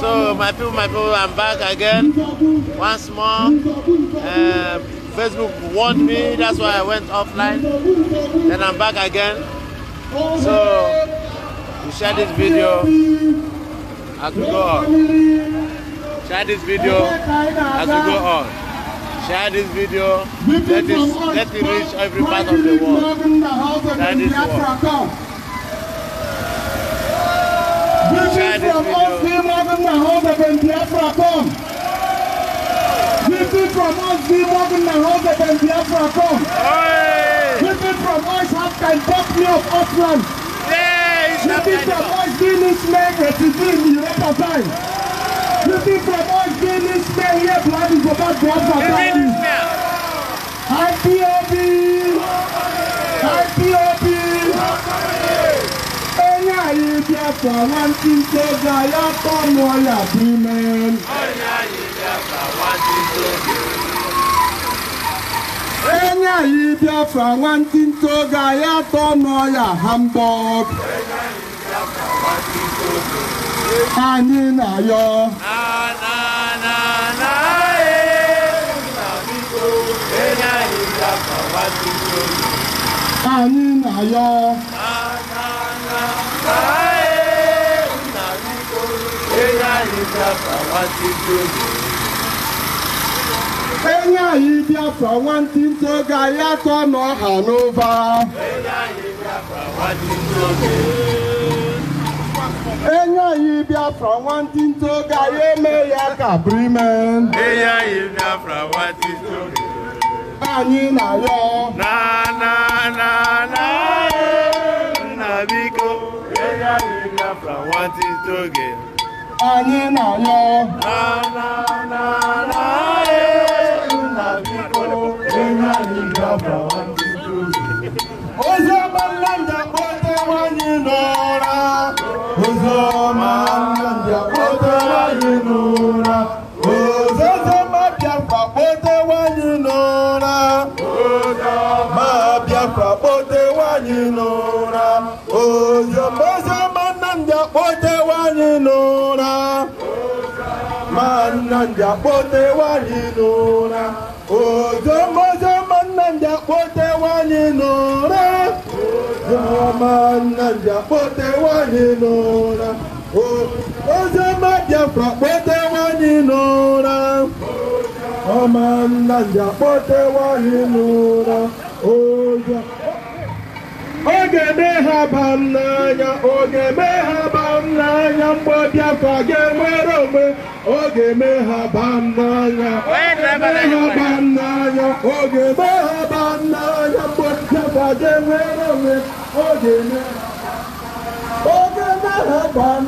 So my people, my people, I'm back again once more. Uh, Facebook warned me, that's why I went offline. Then I'm back again. So you share this video as we go on. Share this video as we go on share this video. Let, this, let it reach every part of the world. That is what. Reaching from us, the Morgan Mahonda, when Biafra come. Reaching from us, the Morgan Mahonda, when Biafra come. Reaching from us, Afghan Buckley of Auckland. Reaching from us, the Englishman, representing time. Reaching from us, the Englishman, here, blood is about Biafra time. IPOB! IPOB! IPOB! ye Biafra wanting soldier, ya come all your women. Enya ye Biafra wanting soldier, ya come all your humbug. Anyị na yọ. Na na na na ee, nna biko, enya ye Biafra wanting soldier. Anyị na yọ enye anyị biafra nwantịntị oge anyị atọ na ha n'ụba enye anyị biafra nwantịntị oge anyị eme ya ka brime anyị na ya na na na atụta oge anyị na-ayọ na na na e, nnamdị akpọtewali n o r a ozoma ozoma nnamdị a k p o t e w a l i n'ụra ozoma nnamdị a k p o t e w a l i n'ụra ozoma biafra a k p o t e w a l i n'ụra o j ọma nnamdị a k p o t e w a l i n'ụra ozoma oge eme ha ba m n'anya oge eme ha ba m n'anya mgbe Biafra ga-enwere onwe Oge ọ n'anya, eme ha baa n'anya oge ga-eme ha baa n'anya mgbe nchekwaje nwere onwe ọ ga-eme ha baa n'anya ọ ga-eme ha baa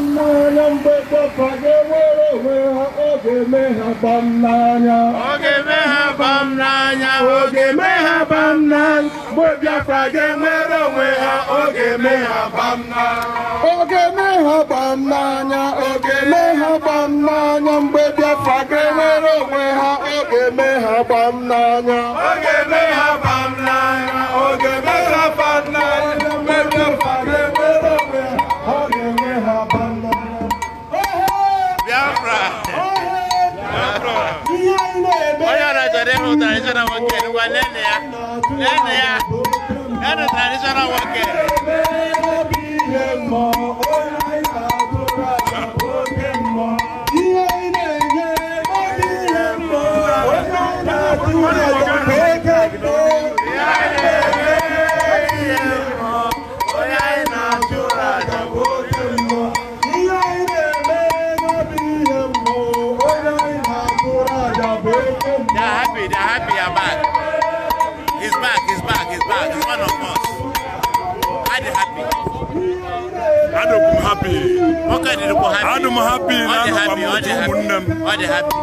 n'anya mgbe nchekwaje nwere onwe ha oge ga-eme ha baa n'anya Oge ga-eme ha baa n'anya oge ga-eme ha baa n'anya Igbo Biafra ga-enwere onwe ha oge me ha gbam n'anya oge me ha gbam n'anya oge me ha gbam n'anya mgbe Biafra ga-enwere onwe ha oge me ha gbam n'anya oge me ha gbam n'anya oge me ha gbam n'anya mgbe oge me ha gbam n'anya Biafra Biafra onye ọrịa chọrọ ịhụta ịchọrọ nwoke ngwa nene ya Then they adum happy na no mamutu munnam ɔde happy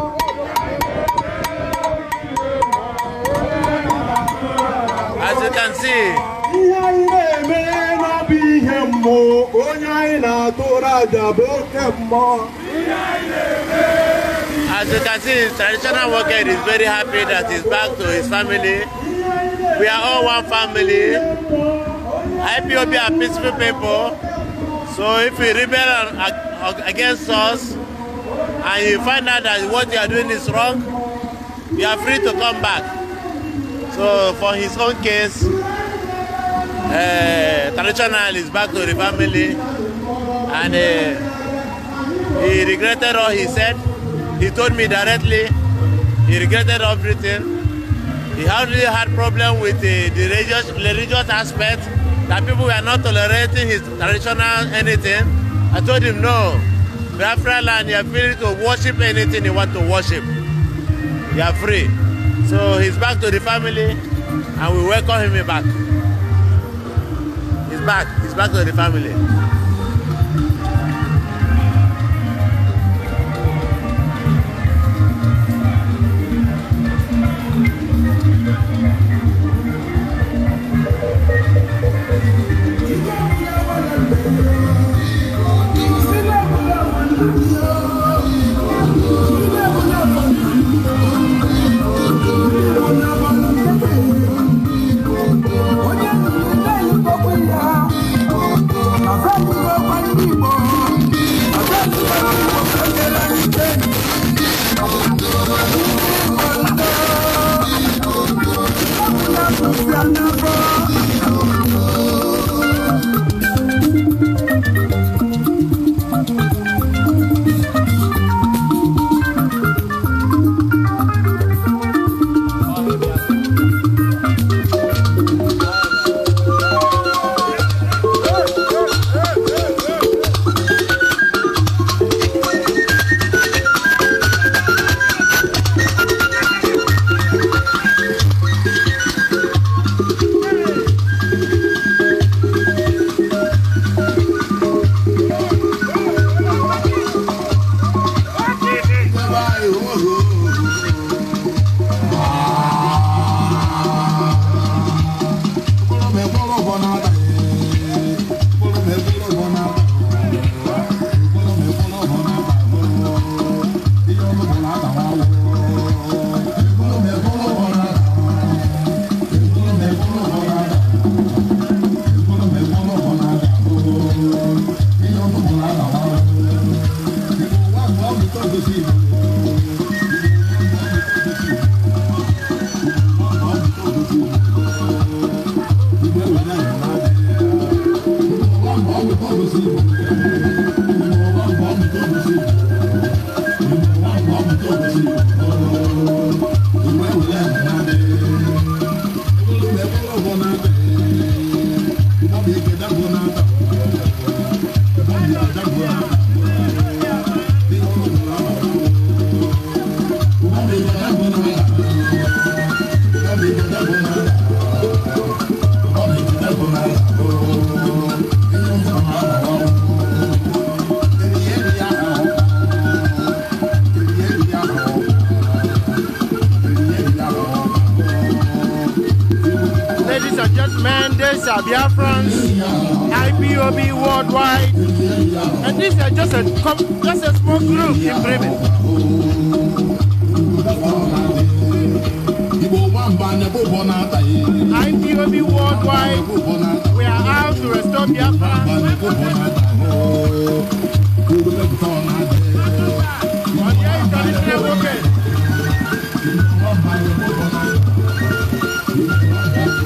as you can see As you can see, traditional worker is very happy that he's back to his family. We are all one family. IPOB are peaceful people. So if you rebel against us and you find out that what you are doing is wrong, you are free to come back. So for his own case, uh, traditional is back to the family and uh, he regretted all he said. He told me directly he regretted everything. He hardly had problem with uh, the religious, religious aspect that people were not tolerating his traditional anything. I told him, no, Biafra land, are free to worship anything you want to worship. You are free. So he's back to the family, and we welcome him back. He's back. He's back to the family. will be worldwide. And these are just a, just a small group in Bremen. IPOB worldwide, we are out to restore Biafra.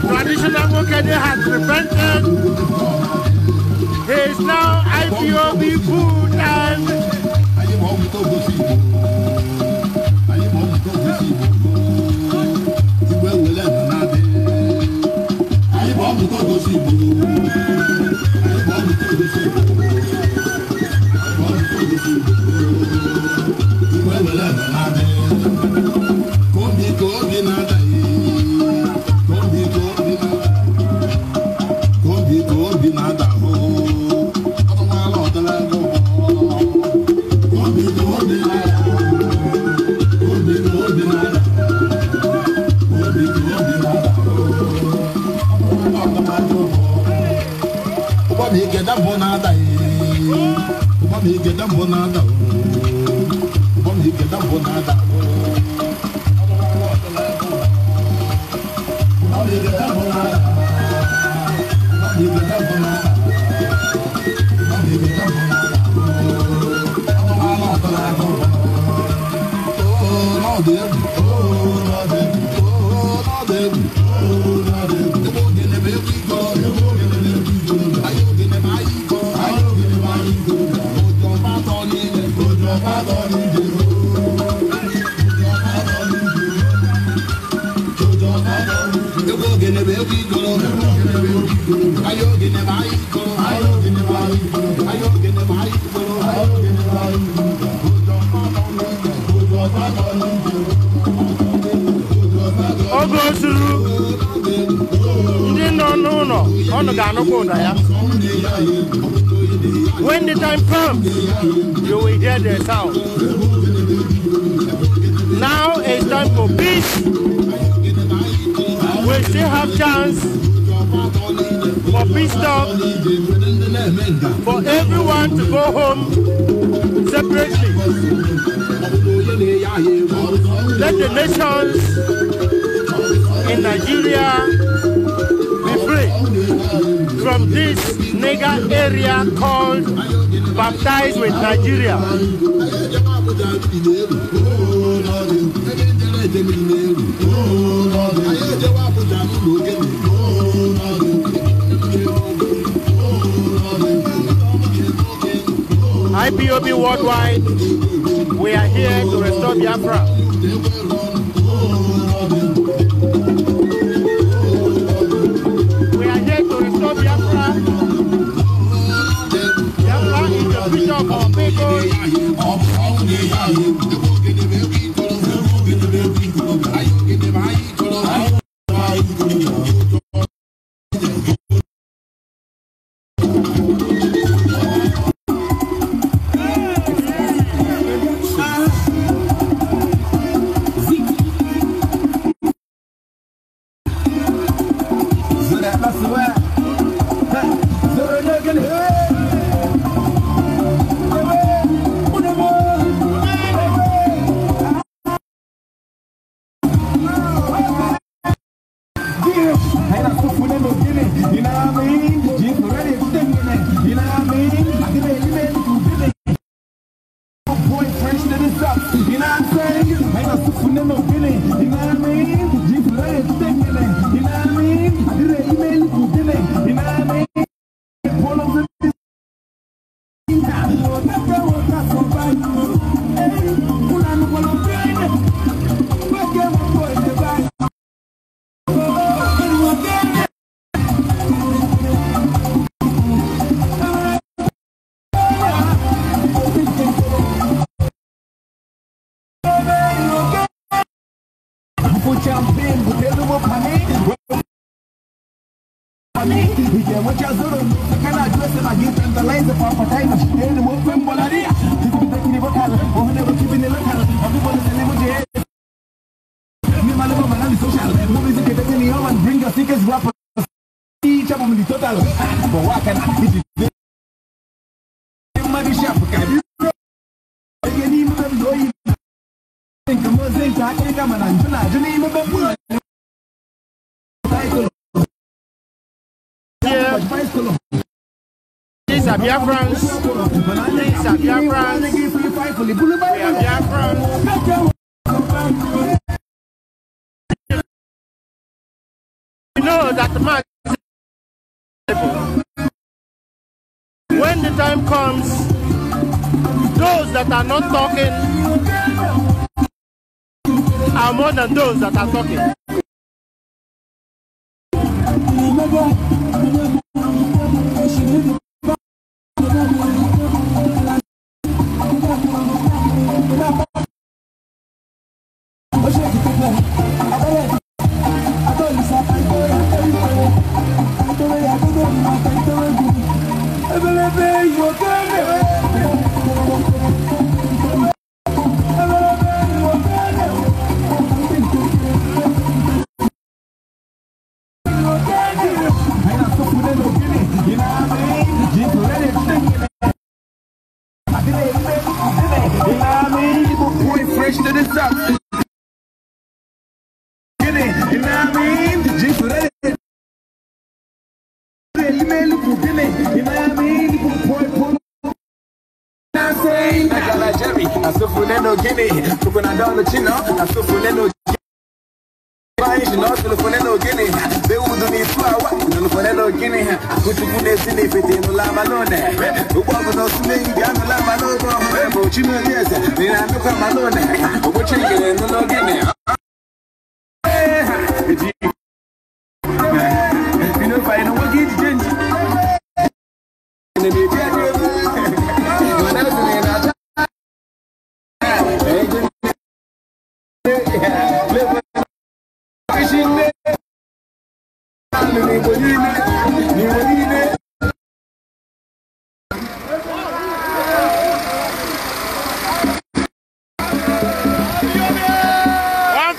traditional market has prevented. It's now IPOB food and. ọnụ ga-anụkwa ụda ya when the time comes you will hear the sound now is time for peace we still have chance for peace talk, for everyone to go home separately. Let the nations in Nigeria be free from this nigger area called baptized with Nigeria. Oh, IPOB worldwide, we are here to restore Biafra. We are here to restore Biafra. Biafra is the future of our people. You know what I mean? ready You know what I mean? for champion butelu mu pani pani ije mu cha zuru kana jwe se ma gin tan lai ze pa pa tai ma ele mu fem bolari ti ko te kini bokal o ne ko kibine lokal o ko bol se ne mu je mi malu ma na social movies ke te ni oman bring us tickets rap Chapo mi total, ah, but what can I do? Yeah. zai ta kai France. nan We know that the When the time comes, those that are not talking are more than those that are talking. no gini tukuna dolo chino na tufune no Baishi no tulufune no gini beudu ni tuawa tulufune no gini kutukune sini fiti nula malone ukwaku no sumingi anula malogo mbo chino yese nina nuka malone ukuchingile nulo gini You know if I know one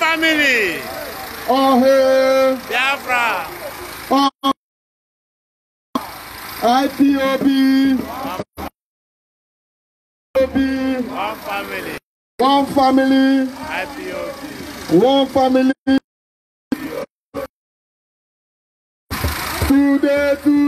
family. ọ̀hún. Biafra. one family. one family. one family. o dedo.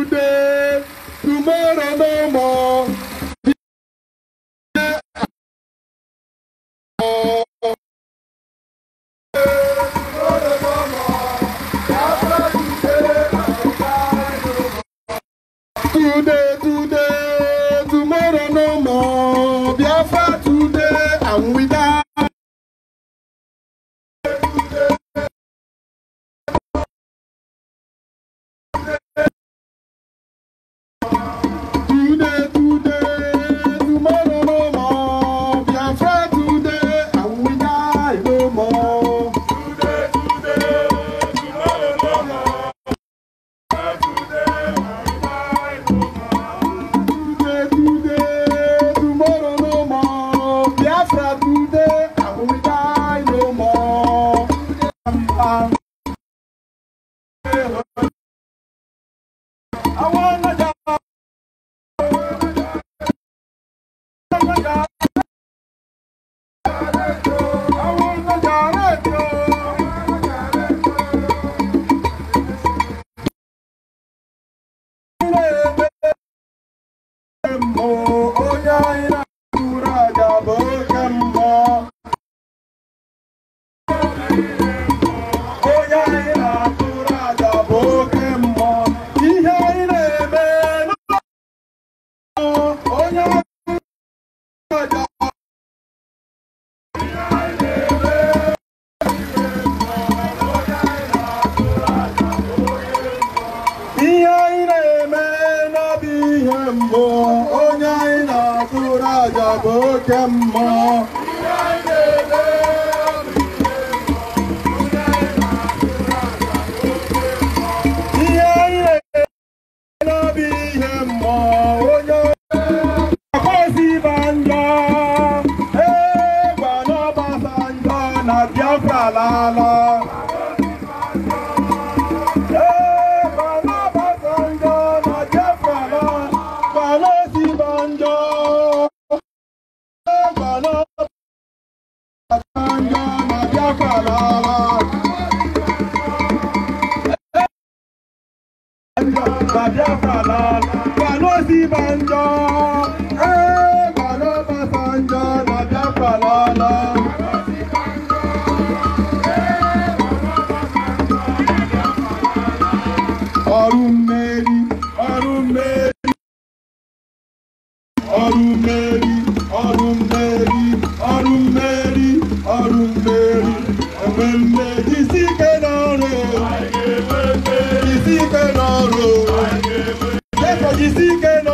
kọ́ńtà lálọ́. ọrùn mẹ́rí ọrùn mẹ́rí ọrùn mẹ́rí ọrùn mẹ́rí enwe mme isi ike n'ọrụ isi ike n'ọrụ isi ike n'ọrụ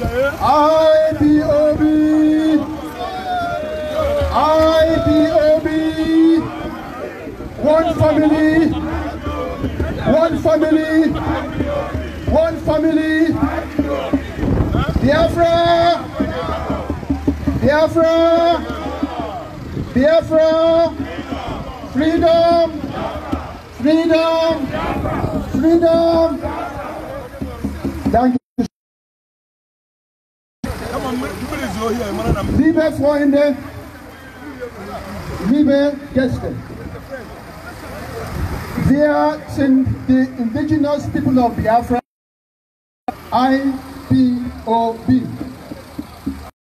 IPOB! IPOB! One family! One family! One family! Biafra! Biafra! Biafra! Freedom! Freedom! Freedom! Freedom. Liebe Freunde, liebe Gäste, wir sind die Indigenous People of Biafra, IPOB.